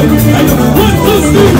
One, two, three.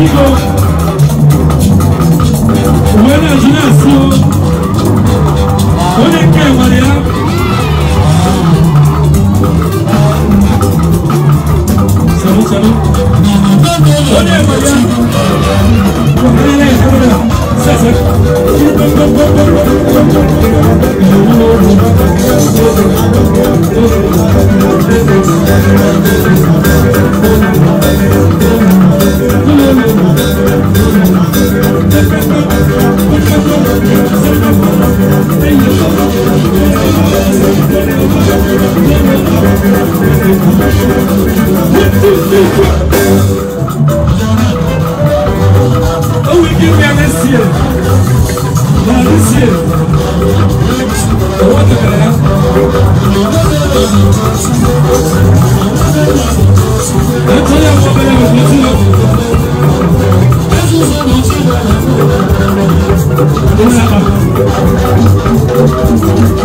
Pico. Buena Ginasso. Olha que Maria. Salud, salud. Olha Maria. Olha, olha, olha. Sasa. Thank you. Oh, we give me this year. Now this What the hell? I tell you man, I'm looking up. This is what I'm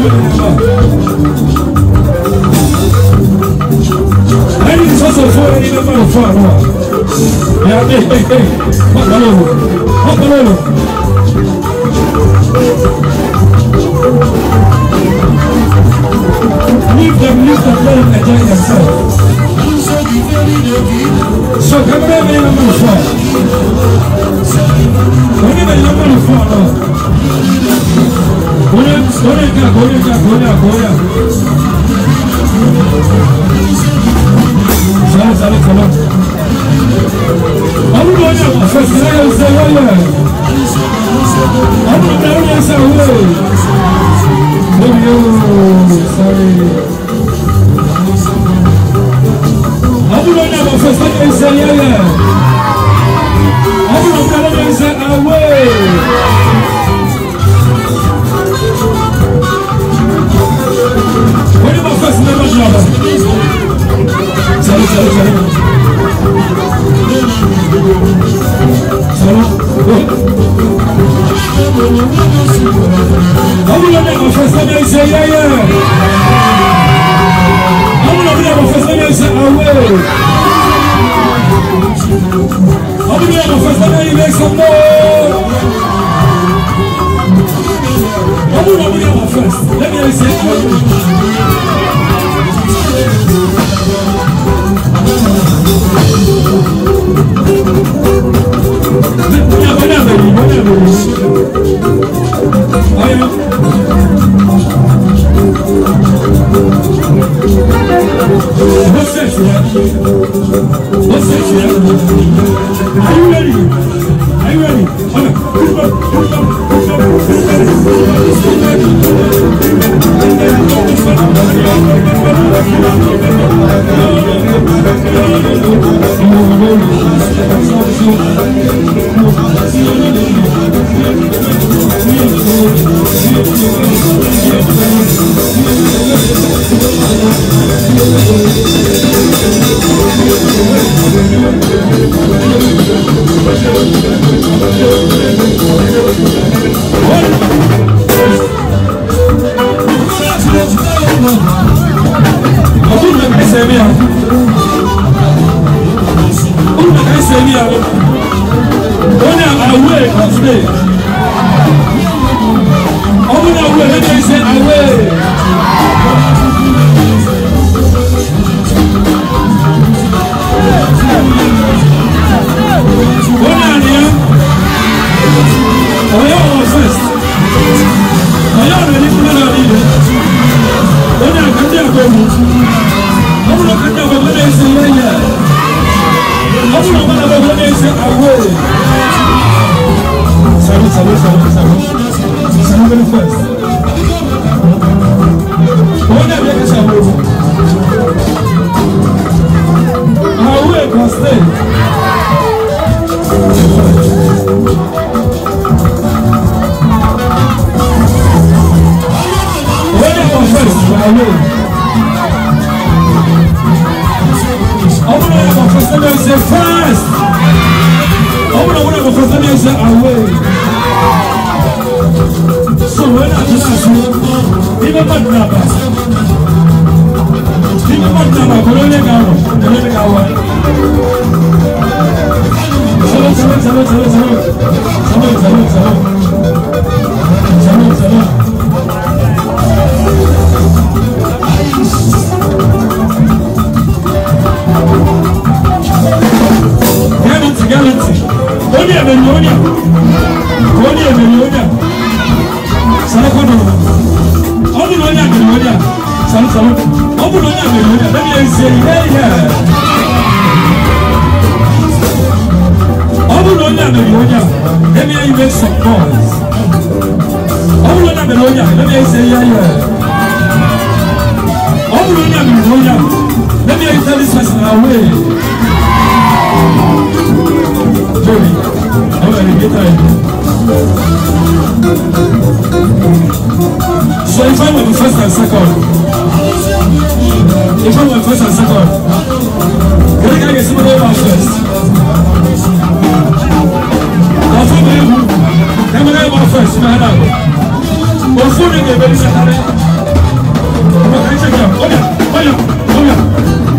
Leave them, leave them alone and enjoy themselves. So come back, Agora, agora, agora, agora. Já, já, já. Vamos ganhar, festejar o seu olho. Vamos dar uma saúde. Morreu, sabe? Vamos ganhar, festejar o seu olho. Vamos dar uma saúde. Vamos lá, negócio, essa daí, aí, Yeah. today. Open your let me say away. Away! Salud, salud, salud, salud. Salud very fast. Wọ́n dàbí ẹ̀ka ṣàbò. Àwọn ẹ̀kọ́ stay. Wọ́n dàbí ẹ̀ka first by way. Ọmọ náà ẹ̀ka first ẹ̀ka ṣe fast. Ọmọ náà ẹ̀ka first ẹ̀ka ṣe away sọ̀rọ̀ náà tó náà sí ní bẹ́ẹ̀ bá dùn àbá ní bẹ́ẹ̀ bá dùn àbá kò ló lè ga rọ̀ kò ló lè ga wọ̀ sọ̀rọ̀ sọ̀rọ̀ sọ̀rọ̀ sọ̀rọ̀ sọ̀rọ̀ sọ̀rọ̀ sọ̀rọ̀ sọ̀rọ̀ sọ̀rọ̀ sọ̀rọ̀. kama ọbụla onye mere onye anaghị ezie ihe ihe ọbụla onye mere onye a eme ya some noise ọbụla onye mere onye a eme ya ezie ihe ihe ọbụla onye mere onye a eme this person away Joey, I'm gonna get tired. So if I'm the first and second, if I'm the first and second, can I get some of first? That's what they do. Can I get first? My hand up. What's the name of the baby? Check it out. Oh yeah, oh yeah, oh yeah.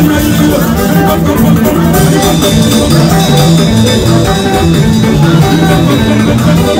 Thank you.